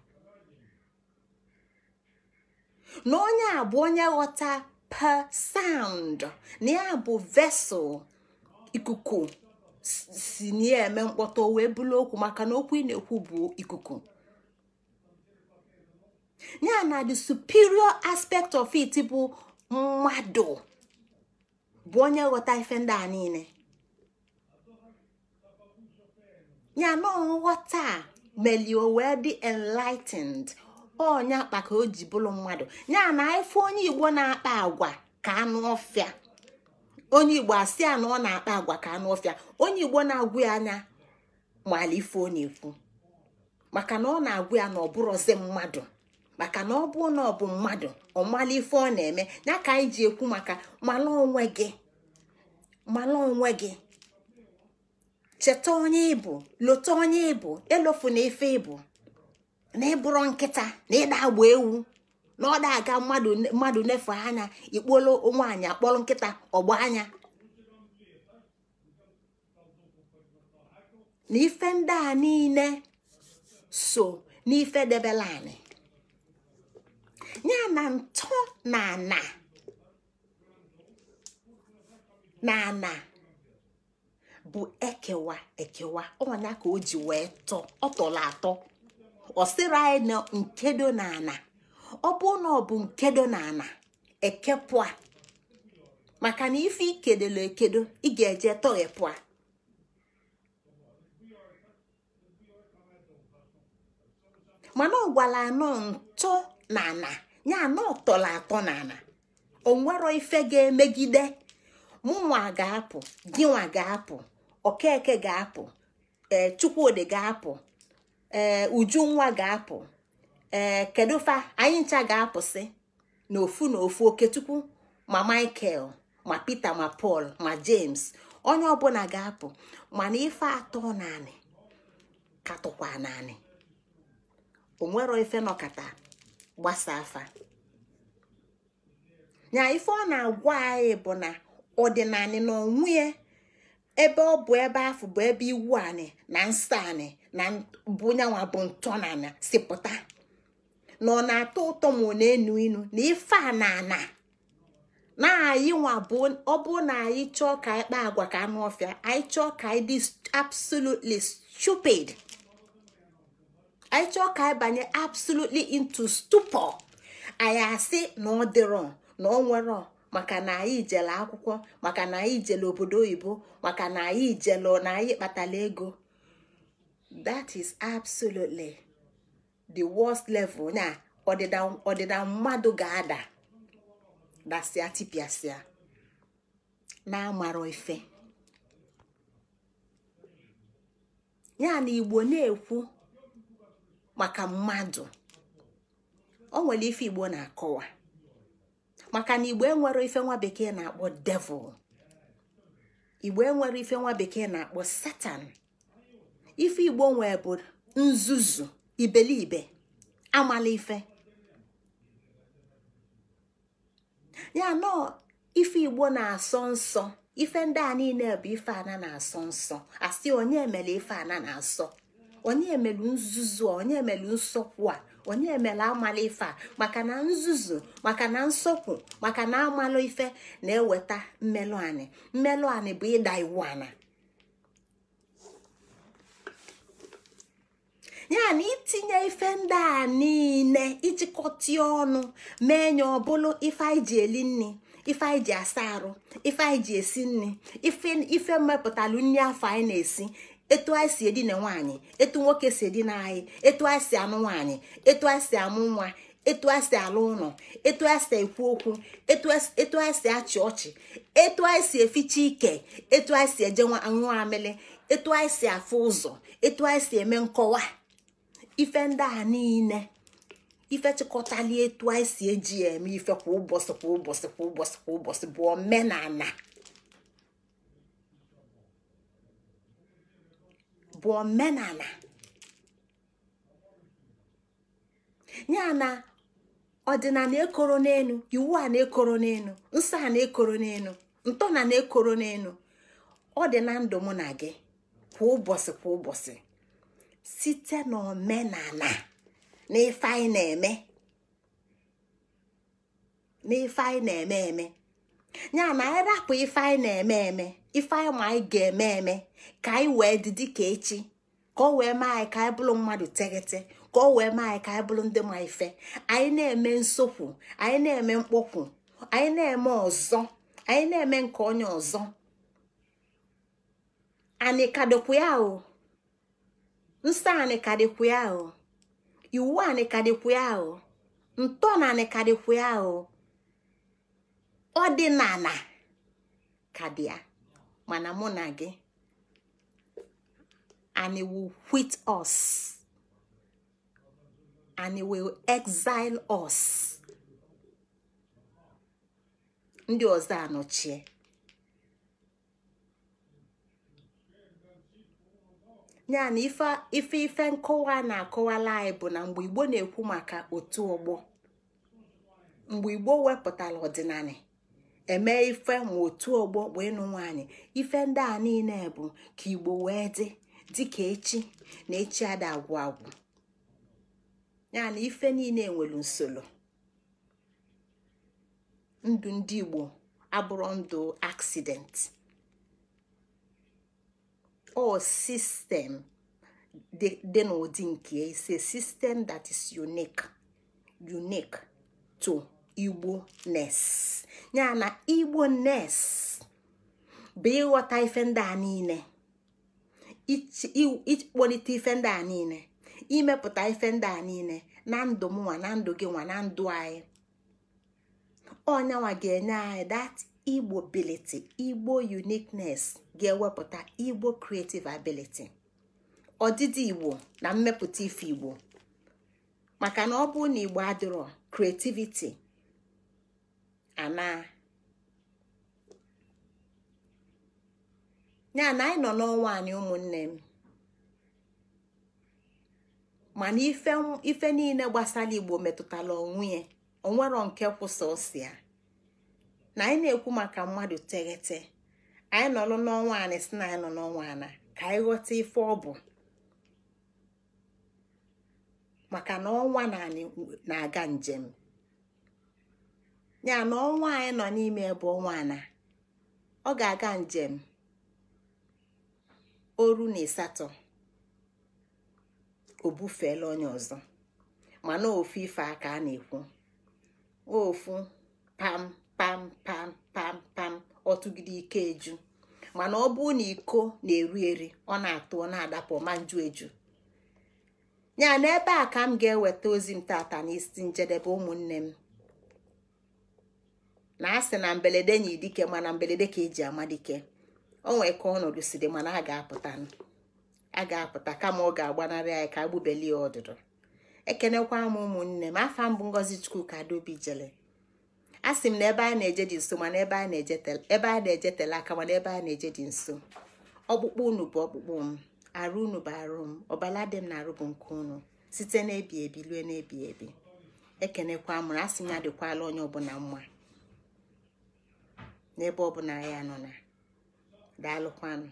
A: na onye a bụ onye ghọta per sound na ya bụ vessel ikuku si na eme mkpọtụ wee bụrụ okwu maka na okwu ị na-ekwu bụ ikuku ya na the superior aspect of it bụ mmadụ bụ onye ghọta ife ndị a niile ya na nghọta melie wee enlightened onye akpa ka o ji bụrụ mmadụ nya na ife onye igbo na-akpa agwa ka anụ ọfịa onye igbo asị ya na ọ na-akpa agwa ka anụ ọfịa onye igbo na-agwụ ya anya mala ife ọ na-ekwu maka na ọ na-agwụ ya na ọ bụrọzi mmadụ maka na ọ bụrụ na ọ bụ mmadụ ọ mala ife ọ na-eme ya ka anyị ji ekwu maka mala onwe gị mala onwe gị cheta onye ịbụ lota onye ịbụ elofu na ife ịbụ na ịbụrụ nkịta na ịda agba ewu na ọ aga mmadụ efe anya ikpolo nwaanyị akpọrọ nkịta ọgba anya na ife ndị a niile so n'ife debela anyị ya na ntọ na ana na bụ ekewa ekewa ọnya ka o ji wee tọ ọ tọrọ atọ ọsịrị anyị nkedo na ana ọ bụ na ọ bụ nkedo na ana ekepụ maka na ife ikedolo ekedo ị ga-eje tọghepụ a mana ọ gwara anọ ntọ na ana ya anọ tọrọ atọ na ana onwero ife ga-emegide mụnwa ga-apụ gịnwa ga-apụ okeke ga-apụ ee eh, chukwudi ga-apụ ee eh, nwa ga-apụ ee eh, kedu fa anyị ncha ga-apụsị na ofu oketukwu tupu ma michael ma peter ma paul ma james onye ọbụla ga-apụ mana ife atọ naanị katụkwa naanị onwero ife nọkata gbasa afa nya ife ọ na-agwa anyị bụ na ọdịnanị na onwunye ebe ọ bụ ebe afọ bụ ebe iwu anị na nsọ anị na bụnyanwa bụ ntọ na ana si na ọ na-atọ ụtọ ma ọ na-enu inu na ife a na ana na anyị nwa ọ bụ na anyị chọọ ka anyị agwa ka anụ ọfịa anyị chọọ ka anyị dị absolutely stupid anyị chọọ ka anyị banye absolutely into stupor anyị asị na ọ dịrọ na ọ nwere maka na anyị jele akwụkwọ maka na anyị jele obodo oyibo maka na anyị jele na anyị kpatala ego that is absolutely the worst level na ọdịda mmadụ ga-ada dasịa tipịasịa na amarọ ife ya na igbo na-ekwu maka mmadụ o nwere ife igbo na-akọwa maka na igbo enwere ife nwa bekee na-akpọ devil igbo enwere ife nwa bekee na-akpọ satan ife igbo nwee bụ nzuzu ibelibe amala ife ya nọọ ife igbo na-asọ nsọ ife ndị a niile bụ ife ana na-asọ nsọ asị onye emela ife ana na-asọ onye emelu nzuzu onye emelu nsọkwu a onye emela amala ife a maka na nzuzu maka na nsọpụ maka na amalụ ife na-eweta mmelụ anị mmelụ anị bụ ịda iwu ana ya na itinye ife ndị a niile ijikọta ọnụ mee ya ọbụla ife anyị ji eli nri ife anyị ji asa arụ ife anyị ji esi nri ife mmepụtalụ nri afọ anyị na-esi etu anyị si edina nwaanyị etu nwoke si edina anyị etu anyị si anụ nwaanyị etu anyị si amụ nwa etu anyị si alụ ụlọ etu anyị si ekwu okwu etu anyị si achị ọchị etu anyị si eficha ike etu anyị si eje nwa amịlị etu anyị si afụ ụzọ etu anyị si eme nkọwa ife ndị a niile ife chịkọtali etu anyị si eji eme ife kwa ụbọchị kwa ụbọchị kwa ụbọchị kwa ụbọchị bụ omenala bụ omenala ya na ọdịnala ekoro n'elu iwu a na-ekoro n'elu nsọ a na-ekoro n'elu ntọ na na-ekoro n'elu ọ dị na ndụ na gị kwa ụbọchị kwa ụbọchị site n'omenala na ife anyị na-eme na ife anyị na-eme eme ya na anyị rapụ ife anyị na-eme eme ife anyị ma anyị ga-eme eme ka anyị wee dị dịka echi ka o wee mee anyị ka anyị bụrụ mmadụ teghete ka o wee mee anyị ka anyị bụrụ ndị ma ife anyị na-eme nsokwu anyị na-eme mkpọkwu anyị na-eme ọzọ anyị na-eme nke onye ọzọ anyị ya o nsọ anyị ya o iwu anyị ya o ntọ na anyị ya o ọdịnala ka dị ya mana mụ na gị and he ọs us ndị ọzọ anọchie ya na ife ife nkọwa na-akọwala anyị bụ na mgbe Igbo na-ekwu maka otu ọgbọ mgbe Igbo wepụtara ọdịnala eme ife ma otu ọgbọ wee nụ nwaanyị ife ndị a niile bụ ka igbo wee dị dịka echi na echi ada agwụ agwụ ya na ife niile nwere nsolo ndụ ndị igbo abụrụ ndụ accident o sistem dị n'ụdị nke ise sistem that is unique unique to igbo nes ya na igbo nes bụ ịghọta ife ndị a niile ịkpọlite ife ndị a niile imepụta ife ndị a niile na ndụ m nwa na ndụ gị nwa na ndụ anyị ọnyanwa ga-enye anyị dat igbo biliti igbo uniqueness ga-ewepụta igbo creative ability ọdịdị igbo na mmepụta ife igbo maka na ọ bụrụ na igbo adịrọ creativity anaa ya na anyị nọ n'ọnwa anyị ụmụnne m mana ife niile gbasara igbo metụtara onwe ya onwero nke kwụsị ọsịa na anyị na-ekwu maka mmadụ teghete anyị nọ n'ọnwa anyị si na anyị nọ n'ọnwa ana ka anyị ghọta ife ọ bụ maka na ọnwa na-aga njem ya na ọnwa anyị nọ n'ime ebe ọnwa na ọ ga-aga njem oru na ịsatọ o bufeela onye ọzọ mana ofu ife aka a na-ekwu ofu pam pam pam pam pam ọtụgide ike eju mana ọ bụ na iko na-eru eri ọ na-atụ ọ na-adapụ ma nju eju ya na ebe a ka m ga-eweta ozi m tata n'isi njedebe ụmụnne m na asị na mberede nyi dike mana mberede ka eji ama dike o ka ọnọdụ si dị mana a ga-apụta a ga-apụta kama ọ ga-agbanarị anyị ka agbubelie ọdụdụ ekenekwa m ụmụnne m afa mbụ ngozi chukwu ka dobi jele a sị m na ebe a na-eje dị nso mana ebe a na-eje tele aka mana ebe a na-eje dị nso ọkpụkpụ unu bụ ọkpụkpụ m arụ unu bụ arụ m ọbala dị m na arụ bụ nke unu site n'ebi ebi lue n'ebi ebi ekenekwa m na a sị m ya dịkwala onye ọbụla mma n'ebe ọbụla ya nọ na daalụkwanụ